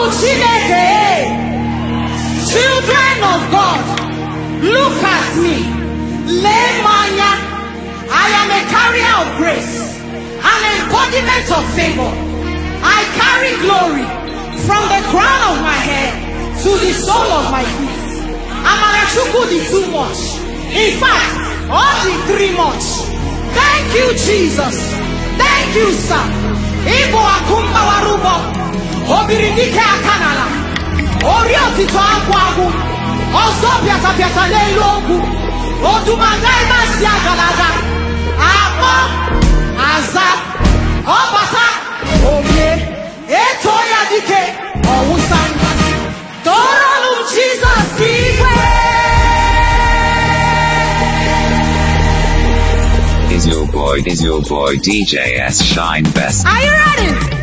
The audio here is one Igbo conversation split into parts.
Ụmụ Chineke children of God look at me lee I am a carrier of grace an embodiment of favor I carry glory from the crown of my head to the sole of my feet Amarachukwu di too much in fact all di three much thank you Jesus thank you sir ịbụ akụ mbawara obiri dike aka n'ala ori otutu agwụ agwụ ọzọ pịatapịata n'elu okwu odumadaimasi agalaga akpọ aza ọbata omie eto ya dike ọwụsa tọrọnụ m jizọs igwe Is your boy, is your boy DJS Shine Best? Are you ready?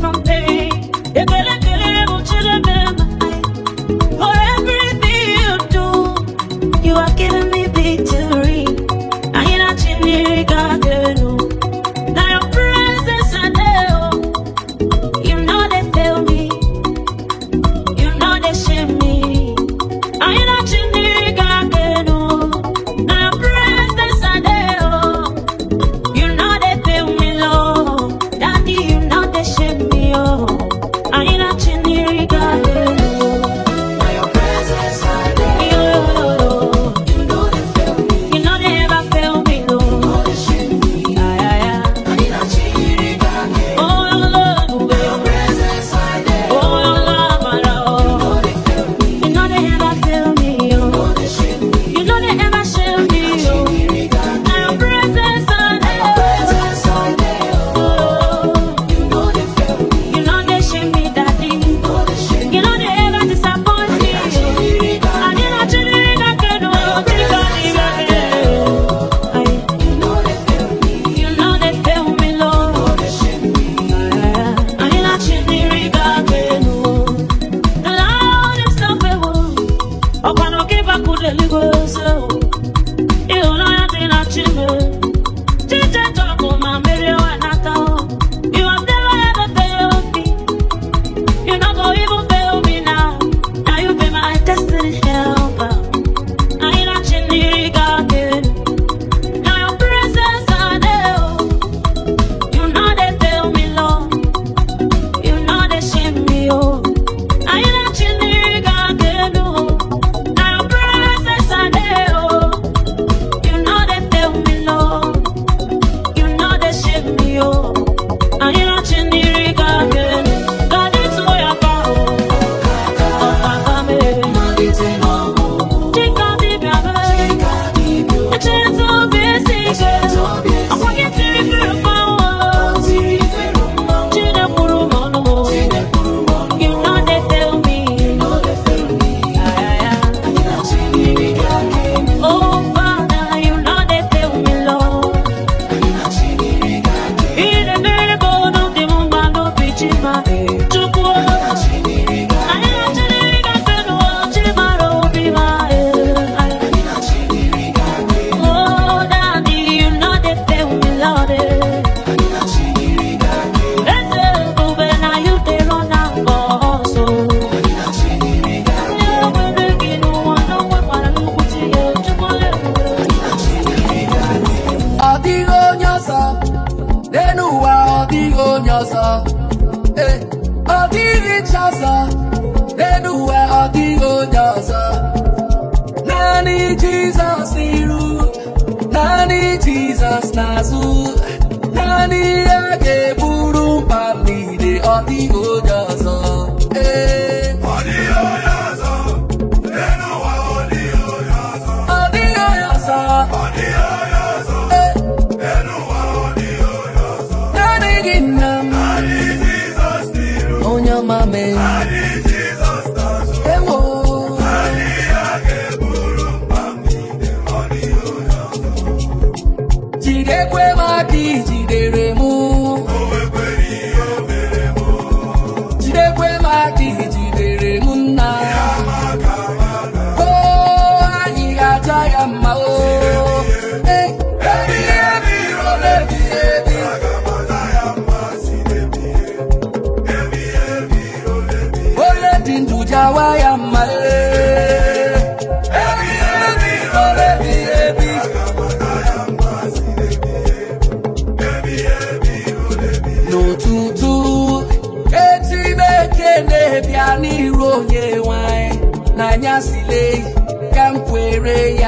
from there.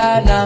ya na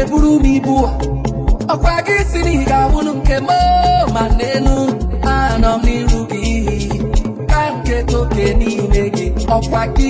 Eburu m ibu ọkwa gị si na ị ga-awụlụ nke m ma n'elu anọ m n'iru gị ka nke toke n'ime gị ọkwa gị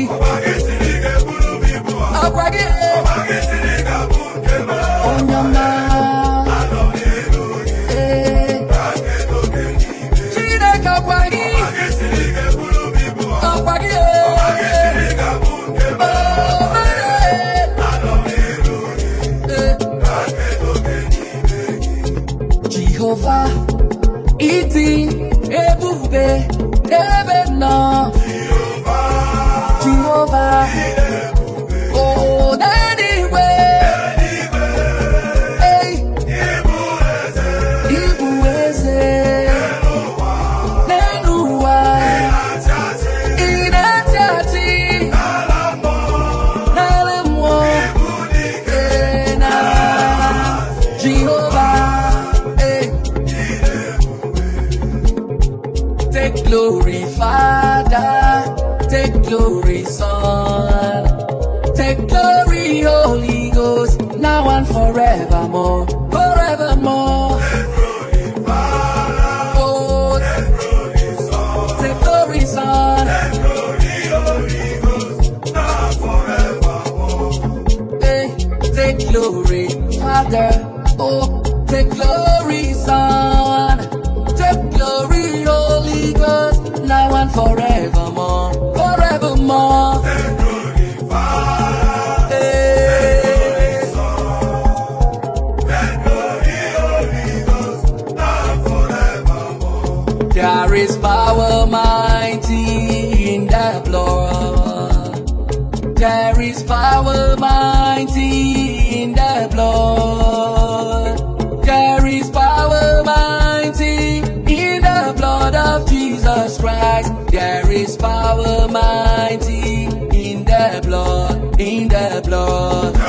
Almighty in the blood, in the blood.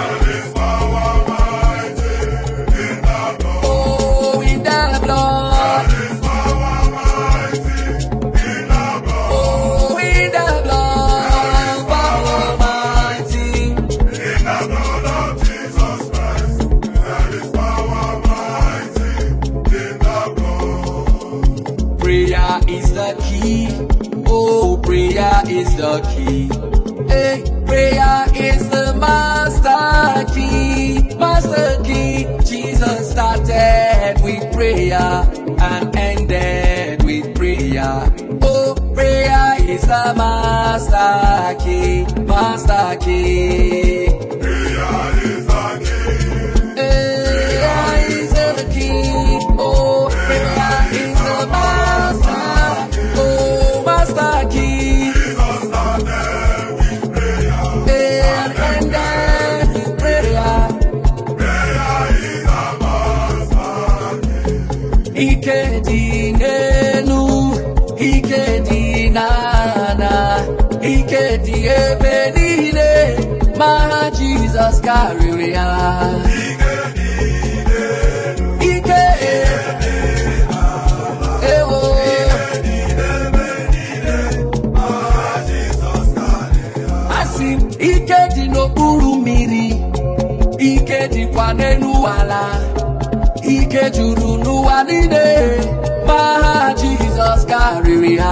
your key. Hey, prayer is the master key, master key. Jesus started with prayer and ended with prayer. Oh, prayer is the master key, master key. karịrị ya ike ewo asị m ike dị n'okpuru mmiri ike dịkwa n'elu ala ike juru n'ụwa niile ma Jizọs karịrị ya.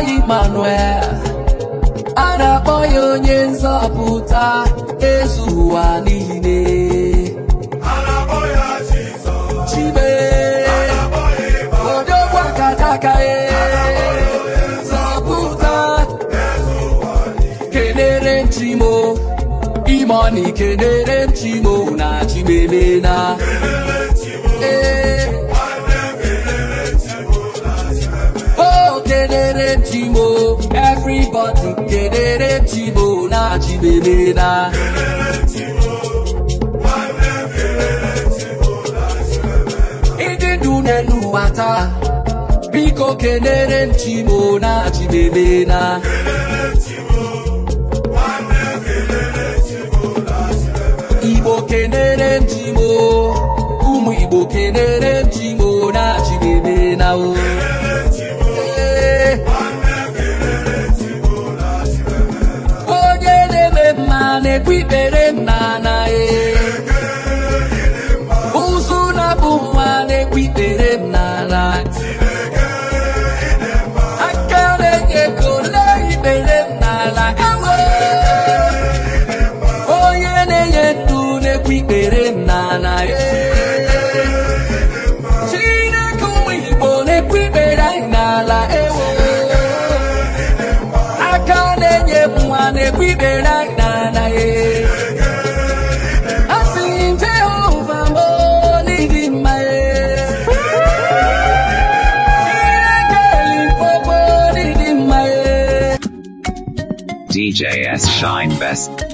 ya Emmanuel a na-akpọ ya onye nzọpụta ezu ụwa niile chibe odogwu akataka zọpụta kenere nchimo kenere nchimo na chimelena ee kere ntimo, na chibebena ndị n'elu biko kelere ntimo na chibebena igbo kelere ntimo, ụmụ igbo kelere ntimo na chibebena oh. ikpere nna na ee Best Shine Best.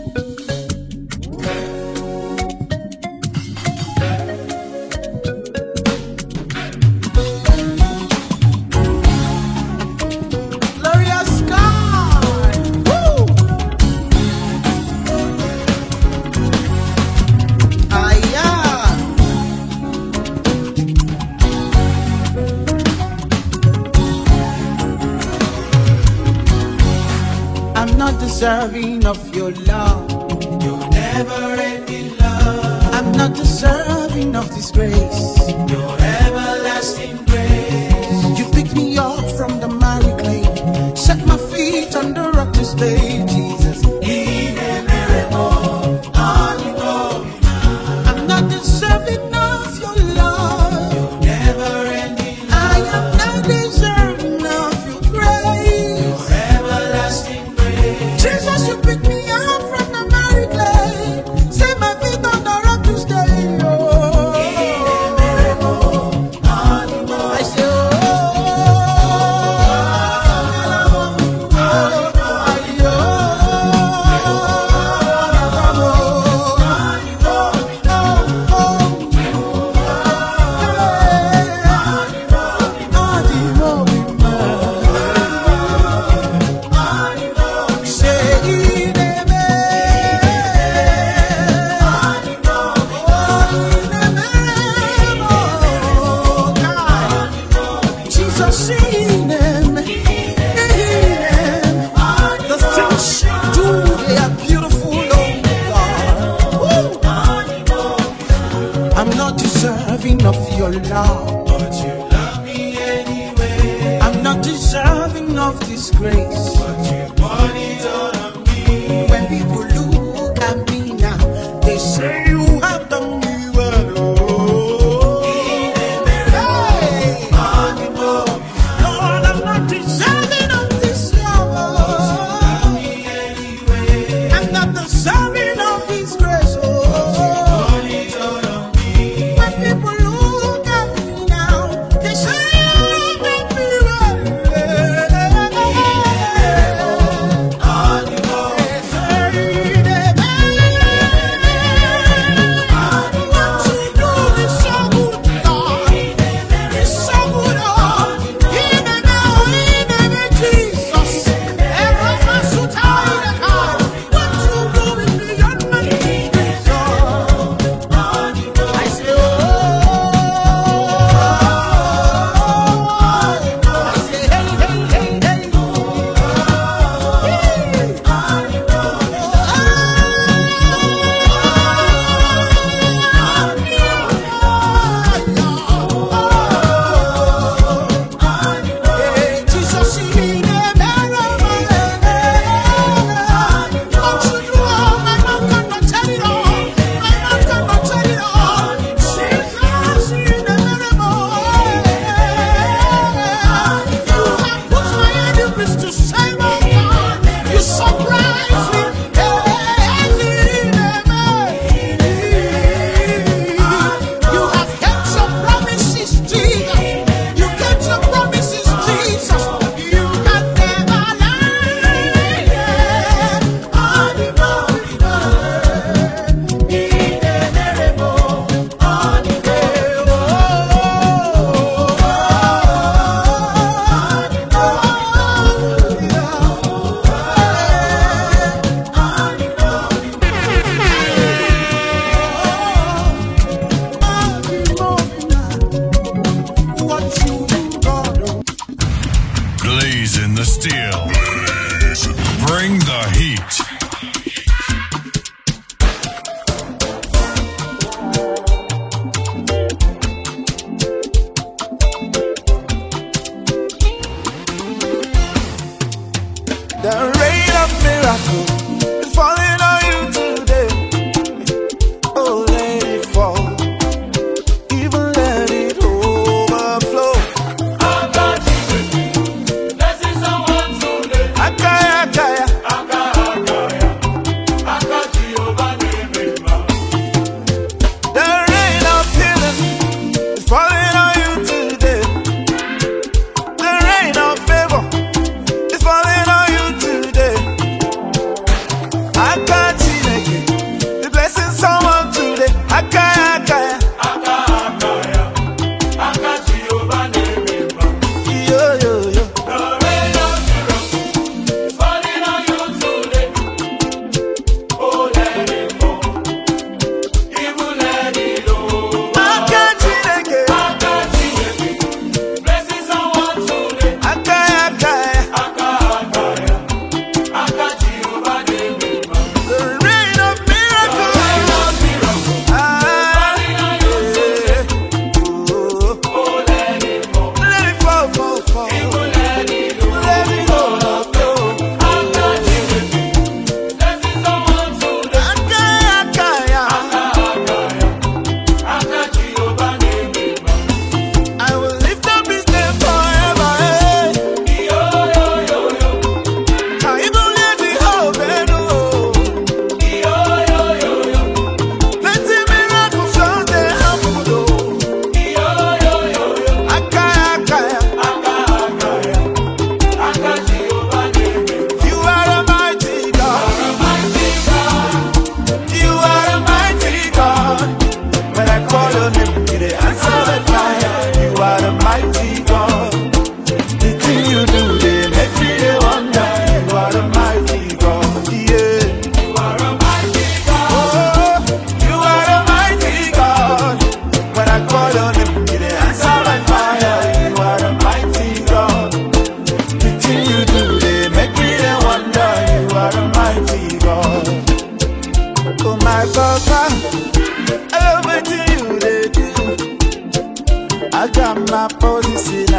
la police.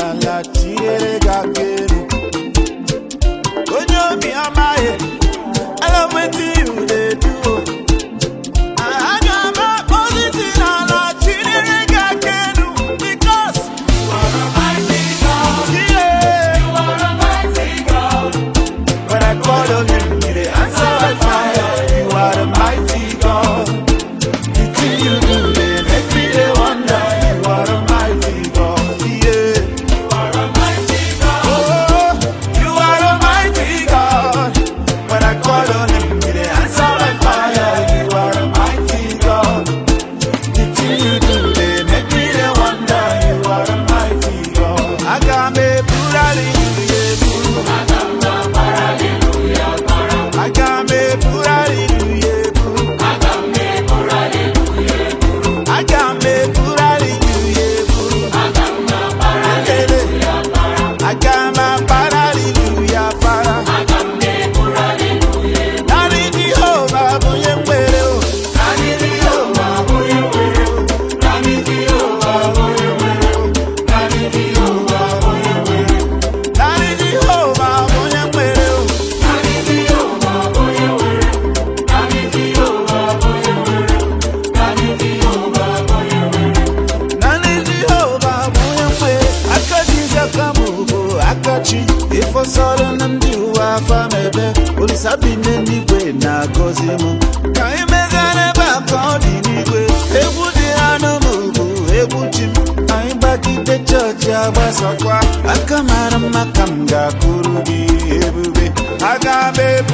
ga-abịa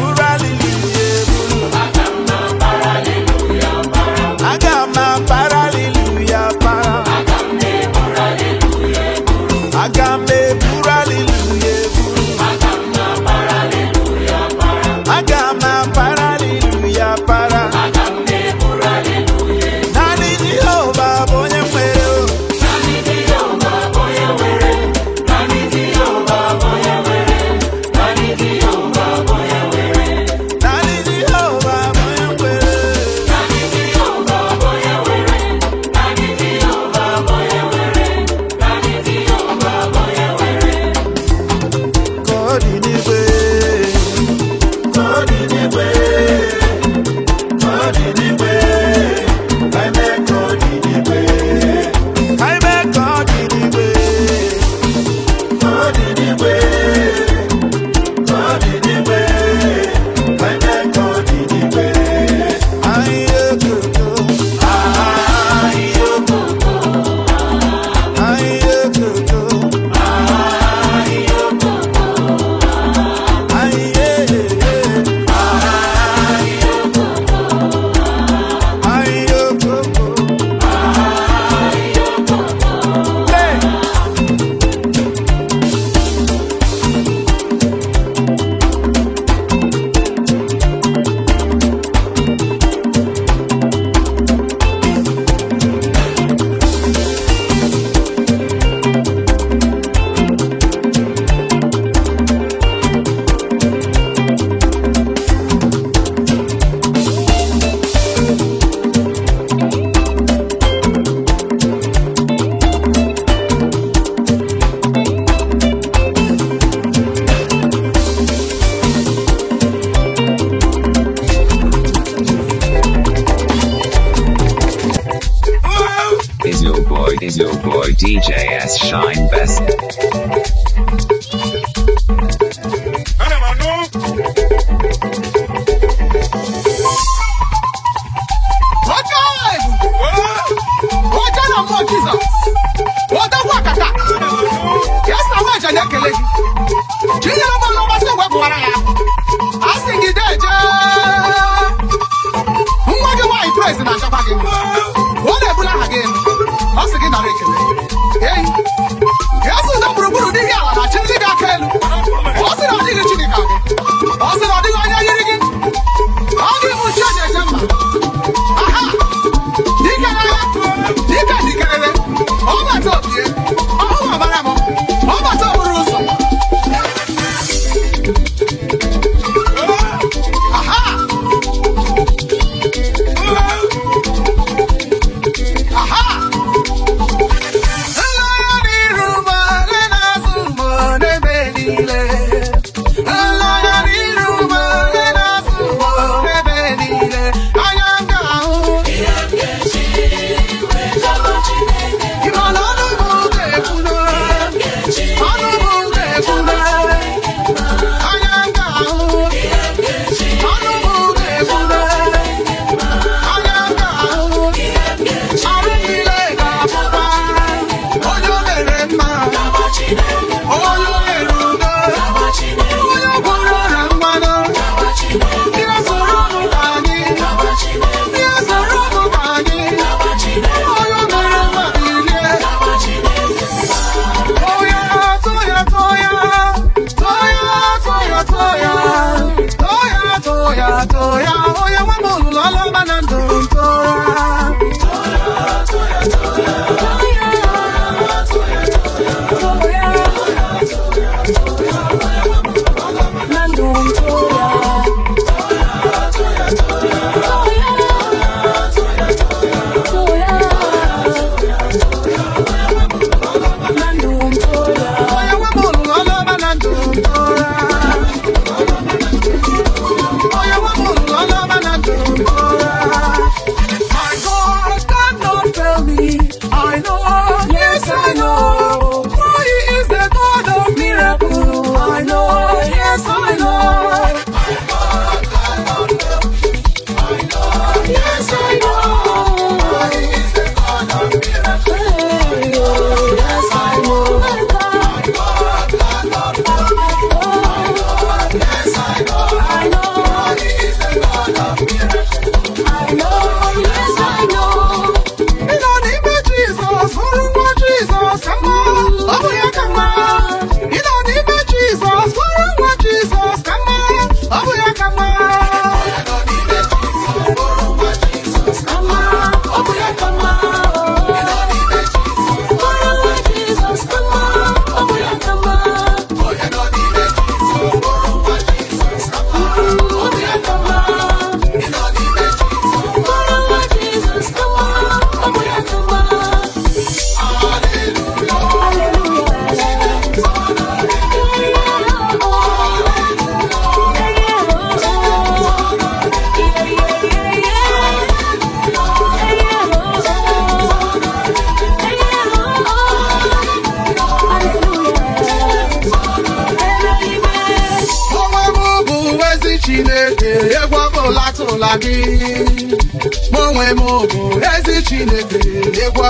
DJ S. Shine Best.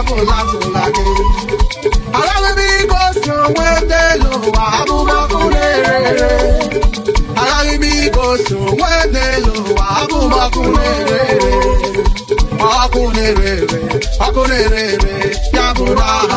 agụlagụla gị agaghị m ike elu ụwa na ọkụ na-erere ọkụ na ya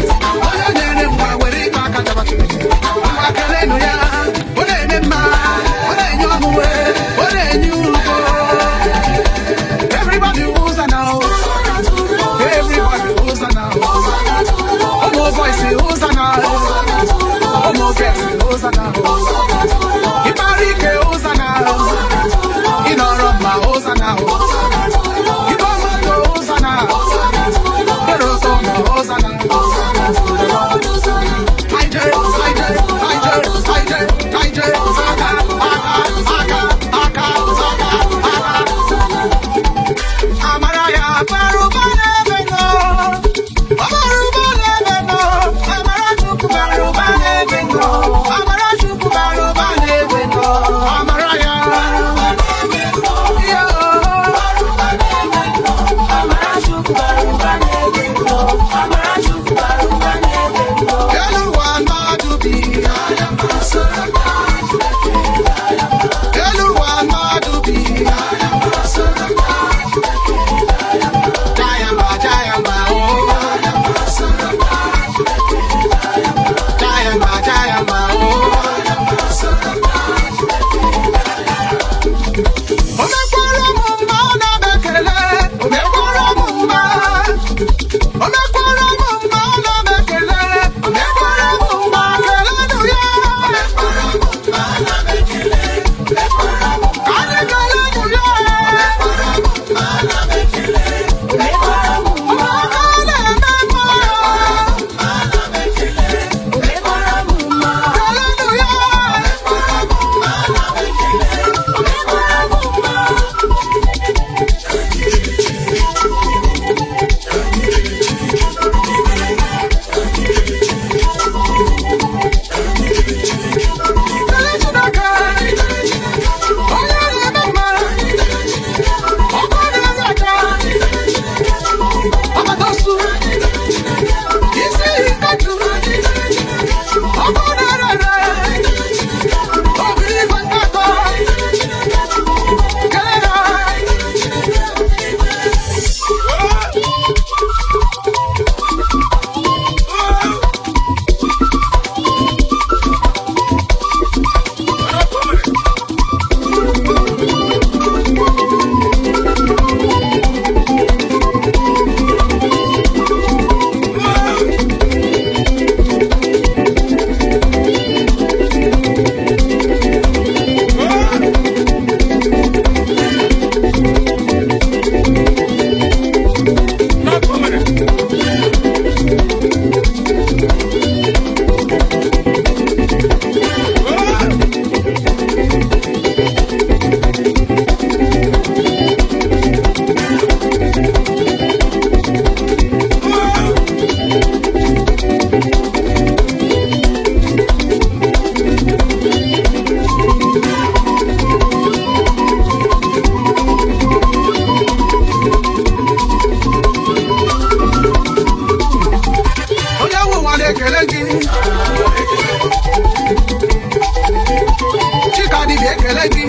ekele gị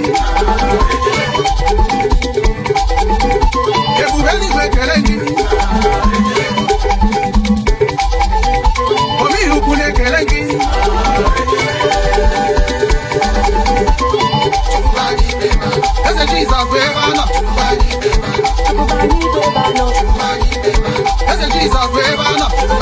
ebube eluigwe ekele gị omeihe na-ekele gị eze jizọs bụ ebe anọ eze jizọs bụ ebe anọ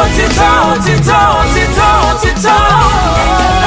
òtítọ́ òtítọ́ òtítọ́ òtítọ́.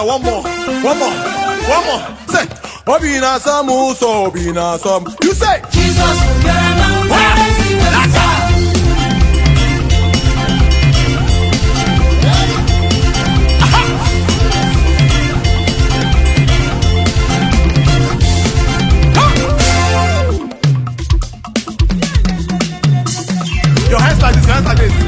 Ghana one more, one more, one more. Say, Obi na some, so Obi na some. You say, Jesus from Ghana. Wow. Your hands like this, your hands like this.